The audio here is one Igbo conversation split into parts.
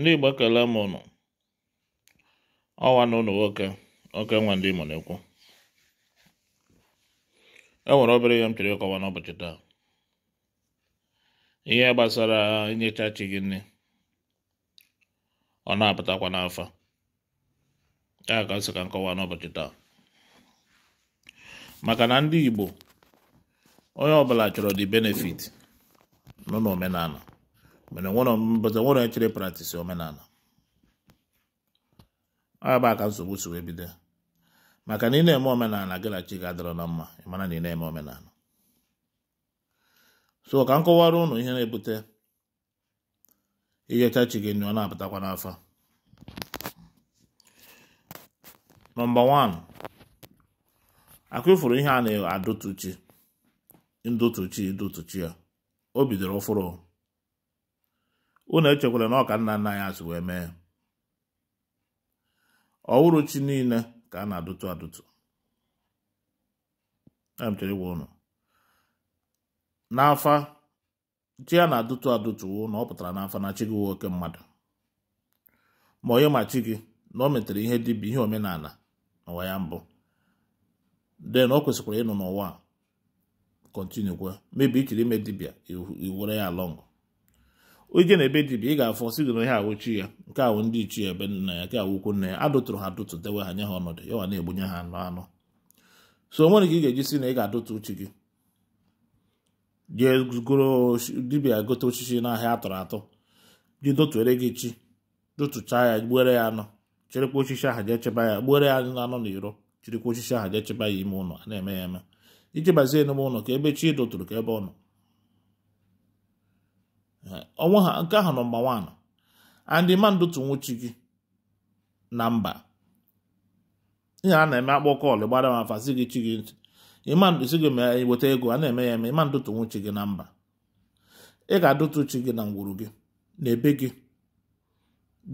ndị Igbo ekele m ụnụ ọwa na ụnụ nwoke oke ndị Igbo na-ekwu e nwere obere ihe m chọrọ ịkọwa n'ụbọchị taa ihe gbasara inyecha chi gị nne ọ na-apụtakwa n'afa ya ka m sị ka m kọwaa n'ụbọchị taa maka na ndị Igbo onye ọbụla chọrọ dị benefit nọ omenala. but I want to actually practice omenala agba aka nsogbu si wee bido maka na ị na-eme omenala gị na chi ga-adịrọ na mma ịmara na ị na-eme omenala so ka m kọwara ụnụ ihe na-ebute ijecha chi gị nyo ọ na-apụtakwa n'afọ nọmba 1 akụfụrụ ihe a na-adụtụchi ndụtụchi idụtụchi ya o bidoro ụfụrụ unu echekwala na ọka nna nna ya azụ wee mee ọwụrụchi niile ka a na-adụtụ adụtụ emchere ịgwa n'afa chi ya na-adụtụ adụtụ na ọ pụtara n'afa na chi gị nwoke oke mmadụ ma onye ma chi gị na o metere ihe dibịa ihe omenala n'ụwa ya mbụ den o kwesịkwara ịnọ n'ụwa kwe mebi ichiri ime dibịa iwere ya lọngụ onye na-ebe dibịa ị ga-afọ si gị na ihe awụ chi ya nke awụ ndị ichie ebe nna ya nke awụkwu nna ya adụtụrụ ha adụtụ dewe ha nye ha ọnọdụ ya wa na-egbunye ha anụ anụ so onwere ka ị ga-eji si na ị ga-adụtụ uche gị jee goro dibịa gote osisi n'ahịa atọrọ atọ ji dotuere gị chi dotụchaa ya gbuere ya anụ chirikwa osisi aha jee chebe ya gbuere ya anọ na iro chịrịkwa osisi ahụ jee chebe ya ime ụlọ a na-eme ya eme iji bazie n'ime ụlọ ka ebe chi dụtụrụ ka ebe ọ nọ onwe ha nke ahụ nọmba wan andị ma ndotu gị na mba ihe a na-eme akpọ kọlụ gbara m afa si gị chi gị ntị ịmandụsi gị ma weta ego a na-eme ya eme ịma ndotu nwuchi gị na mba ị ga-adụtu chi gị na ngwuru gị na ebe gị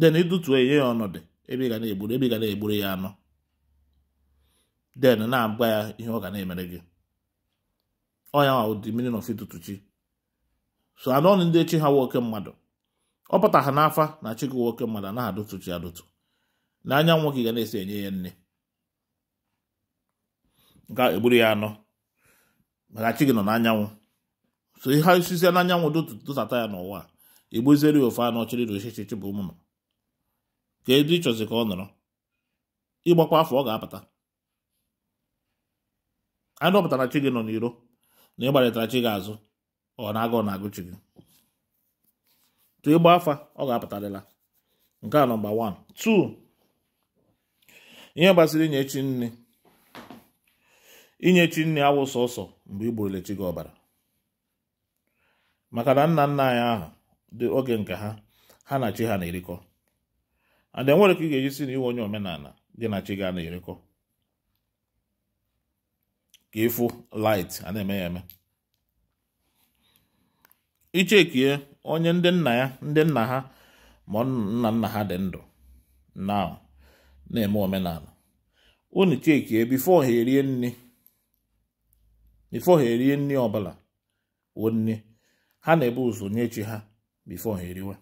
den ịdụtuo ya ya ọnọdụ ebe ị ga na-egburu ebe ị ga na-egburu ya anọ den na-agwa ya ihe ọ ga na-emere gị ọ ya nwa ụdị meaning of ịdụtu chi so anọghị ndị chi ha nwoke mmadụ ọ pụta ha n'afa na chi nwoke mmadụ anaghị chi adụtụ na anyanwụ gị ga na-esi enye ya nne ga egburu ya anọ maka chi gị nọ n'anyanwụ so ihe osisi n'anyanwụ dụtata ya n'ụwa egbuziere ya ofe anọ chiri na ochichichi bụ ụmụnụ ka edu ịchọzi ka ọ nọrọ ịgbakwa afọ ọ ga-apụta anụ ọpụtara chi gị nọ n'iro na ịgbarịtara chi gị azụ ọ na-aga ọ na-agụchi gị tụ ịgba afa ọ ga-apụtarịla nke a nọmba 1 2 ihe gbasara inye chi nne inye chi nne awụ sọsọ mgbe igburule chi gị ọbara maka na nna nna anyị ahụ dị oge nke ha ha na chi ha na-erikọ Ada enwere ka ị ga-eji si na iwe onye omenala gị na chi gị a na-erikọ ka ịfụ light a na-eme ya eme ichekie onye ndị nna ya ndị nna ha ma nna nna ha dị ndụ na na-eme omenala unu chekie bifo ha erie nri bifo ha erie nri ọbụla ha na-ebu ụzọ nye chi ha bifo ha eriwe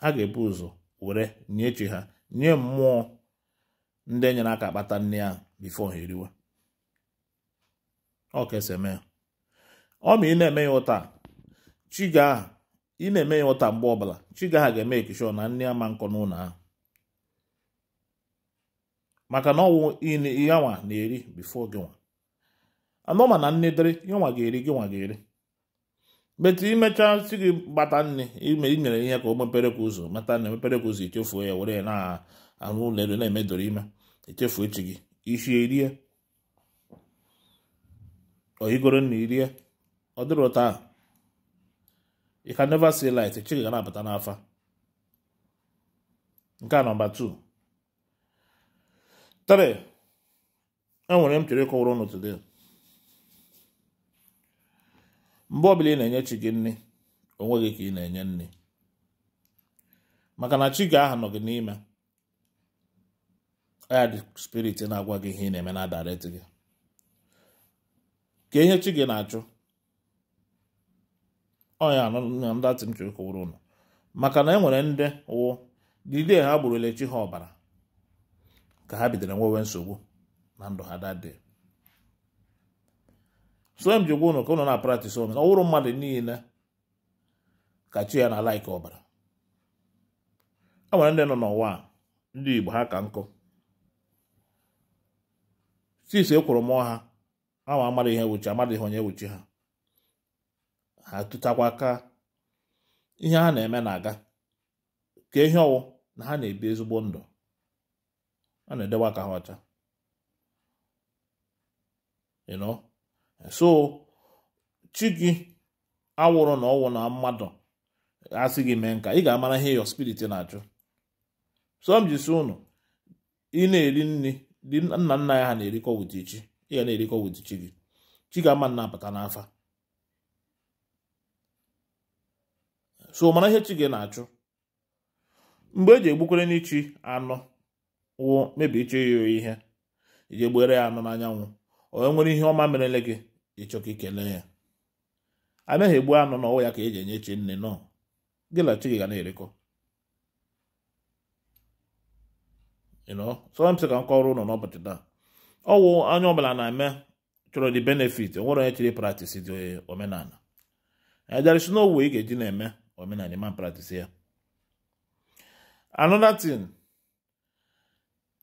ha ga-ebu ụzọ were nye chi ha nye mmụọ ndị enyere aka kpata nri ahụ bifo ha eriwe ọ ọ ma ị na-eme ya ụta chiga ị na-eme ya ụta mgbe ọbụla chiga ha ga-eme ekishọ na nne ama nkọ n'ụlọ ahụ maka na ọnwụ yanwa na-eri bifo gị nwa anọma na nne dịrị yanwa ga-eri gị nwa ga-eri metụ imechaa si gị gbata nne ime inyere ihe ka o mepere ka ụzọ mata na emepere ka ụzọ echefuo ya were ya na-arụ ụlọ elu na-emedoro ime echefu echi gị ishi erie oyigoro na irie ọ dịrị a, you can never see light echighị ga na-abata n'afa nke a nọmba 2 3 enwere m chere ịkọwara ụnụ today mgbe ọbụla ị na-enye chi gị nri onwe gị ka ị na-enye nne. maka na chi gị aha nọ gị n'ime ya dị spirit na-agwa gị ihe ị na-eme na direct gị ka ihe chi gị na-achụ ọnya anọ na datị nche kụwụrụ ụnụ maka na e nwere ndị wụ dide ha gburu elechi ha ọbara ka ha bidoro nwewe nsogbu na ndụ ha dade so m ji gwa ụnụ ka ụnụ na praktis na ọwụrụ mmadụ niile ka chi ya na laiki ọbara e nwere ndị nọ n'ụwa ndị igbo ha ka nkụ sis e kwụrụ mụọ ha ama amaghị ihe ewuchi amaghị ihe onye ewuchi ha ha ka ihe ha na-eme na-aga ka ihe ọwụ na ha na-ebi ezigbo ndụ a na-edekwa ka ha ọcha so chi gị awụrụ na ọwụ na mmadụ asị gị mee nka ị ga-amara ihe ịyọ spirit na-achụ so m ụnụ ị na-eri nri dị nna nna ya ha na-erikọ wụta ị ga na-erikọ wụta chi gị chi ga-ama nna apụta n'afa so mara ihe chi gị na-achụ mgbe eji egbukwere n'ichi anụ wụ mebie ịchọ ya oyi ihe iji egbere ya anụ n'anyanwụ onye nwere ihe ọma merele gị ịchọ ka ikele ya anaghị egbu anụ n'ọwụ ya ka eji enye chi nne nọ gị na chi gị ga na-erekọ sị ka m kọrọ ụlọ n'ụbọchị taa ọwụ anya ọbụla na-eme chọrọ dị benefit onwere onye chiri praktis dị omenala ya jarisi n'owu ị ga-eji na-eme women and man practice here. Another thing,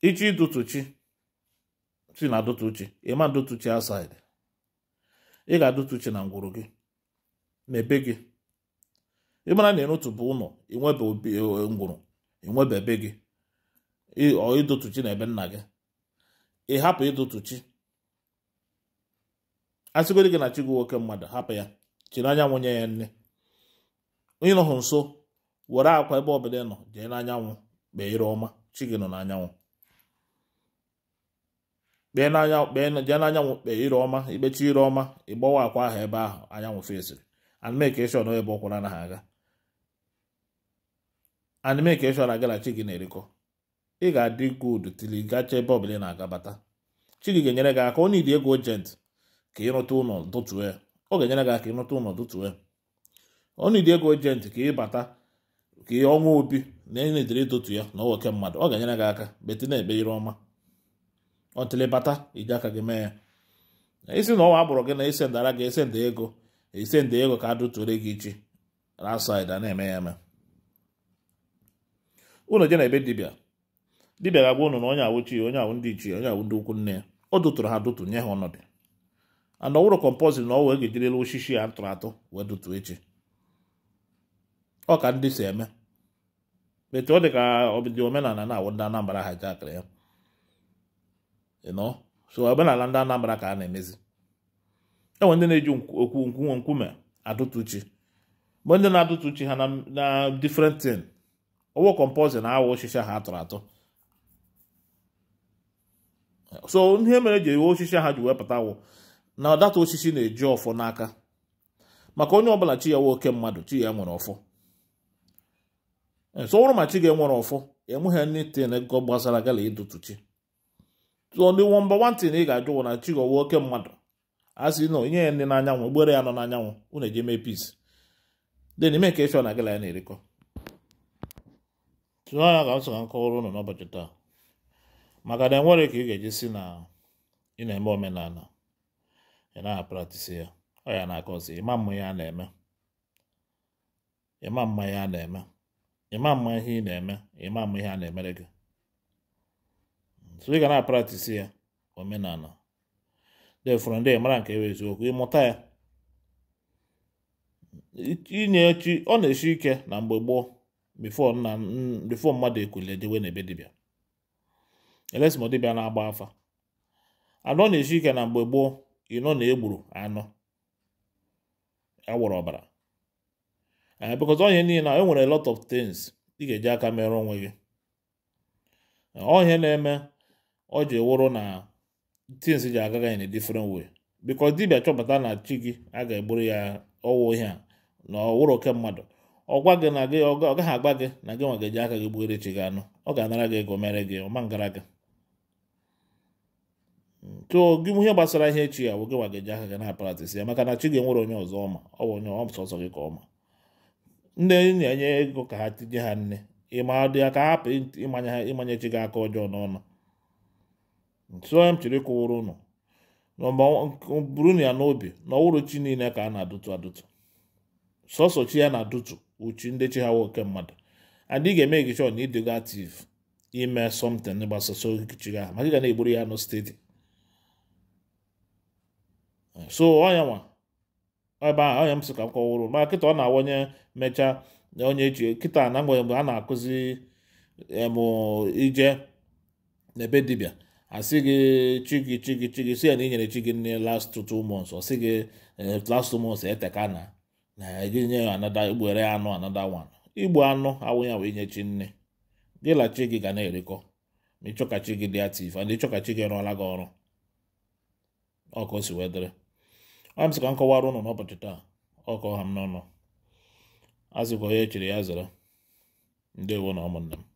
ichi dutuchi, si na dutuchi, ịma dutuchi outside. Ị ga-adutuchi na ngwuru gị, na ebe gị. Ị mara na ịrụtụ bụ ụlọ, inwebe eh, eh, ngwuru, inwebe ebe gị, ọ idutuchi na ebe nna gị. Ị hapụ idutuchi. A sịgodi gị na chi gị nwoke mmadụ, hapụ ya, chiri anyanwụ nye ya nne. ịnọhụ nso were akwa ebe ọbụla nọ jee n'anyanwụ kpee ire ọma chi gị ọma ikpechi ire ọma ịgbawa akwa ahụ ebe ahụ anyanwụ fesiri animekeshọn ebe ọkwụra na ha aga animekeshọn agalachi gị na-erikọ ị ga-adị gud tili gacha ebe na-agabata ga-enyere gị aka onye idi ego ojent ka ịrụta ụlọ dụtue ọ ga ọnụidi ego ojenti ka ịbata ka ọnwa obi na enye edere ịtụtụ ya na ọwoke mmadụ ọ ga-enyere gị aka beti na ekpe ire ọma ọtịlị bata iji aka gị mee ya isi na ọnwa agbụrụ gị na isendara gị esenda ego esenda ego ka adụtụre gị ichi rasaid a na-eme ya eme unu je na ebe dibịa dibịa ga-agwa unu na onye awụchi onye awụ ndị ichie onye awụ ndị ukwu nne ya ọ dụtụrụ ha dụtụ nye ha ọnọdụ ana ọwụrụ kọmpọzin na ọwa ege jirila osisi ya tụrụ atụ wee dụtụ echi ọ ka ndị si eme etu ọ dị ka ọbịdị omenala na-awụ ndị Anambra ha ji ya ịnọ so omenala ndị Anambra ka a na-emezi enwe ndị na-eji okwu nkwuwe nkume adụtụ chi mgbe ndị na-adụtụ chi ha na different thing ọwụ kọmpọzin na awa oshishi ha atụrụ atụ so ihe mere eji ewe oshishi ha ji wepụta wụ na data osisi na-eji ọfọ n'aka maka onye ọbụla chi ya nwoke oke mmadụ chi ya nwere ọfọ so ma chi ga-enwere ọfọ enweghị anything ego gbasara gala chi tụọ ndị nwamba na ị ga-ajụ wụ na chi gọwa oke mmadụ a sị na onye ya ndị n'anyanwụ gbere ya nọ n'anyanwụ unu eji mee peace de n'ime ka efe na gala ya na-erikọ tụọ ya ga m so ka m kọwara ụnụ n'ụbọchị taa maka na enwere ka ị ga-eji si na ị na-eme omenala ị naghị apratisi ya ọ ya na-akọzi ịma mma ya na-eme ịma mma ya na-eme ịma mma ihe ị na-eme ịma mma ihe a na-emere gị so ị ga na-apratisi ya omenala fụrụ ndị mara nke ewe eziokwu ịmụta ya inye chi ọ na-eshi ike na mgbe gboo bifo mmadụ ekwule dewe na ebe dibịa elesimo dibịa na-agba afa ọ na-eshi ike na mgbe gboo ịnọ na egburu anụ awọrọ ọbara Eh, because onye niile na e nwere a lot of things ị ga-eji aka mere onwe gị eh, onye na-eme ọ ji wụrụ na things ji agaga in a different way because dibịa chọpụta na chi gị a ga-egburu ya ọwụ ihe a na ọwụrụ oke mmadụ ọgwa gị na gị ọ gaghị agba gị na gị nwa ga-eji aka gị gbuere chi gị anụ ọ ga-anara gị ego mere gị ọma ngara gị tụọ gị ihe gbasara ihe echi ya bụ gị nwa ga-eji aka gị na-apratisi ya maka na chi gị nwere onye ọzọ ọma ọ bụ onye ọsọsọ gị ka ọma ndị na-enye ego ka ha tinye ha nne ịmadụ ya ka ha hapụ ịmanye ha chi gị aka ọjọọ n'ọnụ nso m chere kwụwụrụ ụnụ buru ya n'obi na ọwụrụ chi niile ka a na-adụtụ adụtụ sọsọ chi ya na-adụtụ uchi ndị chi ha nwoke mmadụ adị ga-eme gị chọọ na ịdịgo ativ ime sọmtin gbasasọ okichi gị ahụ maka ị ga na-egburu ya n'steeti so ọ ya nwa ebe ahụ anya m sị ka m kọwụrụ ma kịta ọ na-awanye mechaa onye eji kịta na mgbe mgbe a na-akụzi m ije n'ebe dibịa asị gị chi gị chi gị si ya na inyere chi gị nne last two months ọ sị gị eh, last two months eteka na na gị nye anada igbere anụ anada one igbu anụ awụghị wee nye chi nne gị la chi gị ga na-erikọ ma ịchọkachi gị dị ativ ịchọka ịchọkachi gị rụọla gị ọrụ ọkụ si wee dịrị a m sị ka m ụnụ n'ụbọchị taa ọkọ ha m n'ọnụ azịkwa onye echere ya zara ndewo na ụmụnna m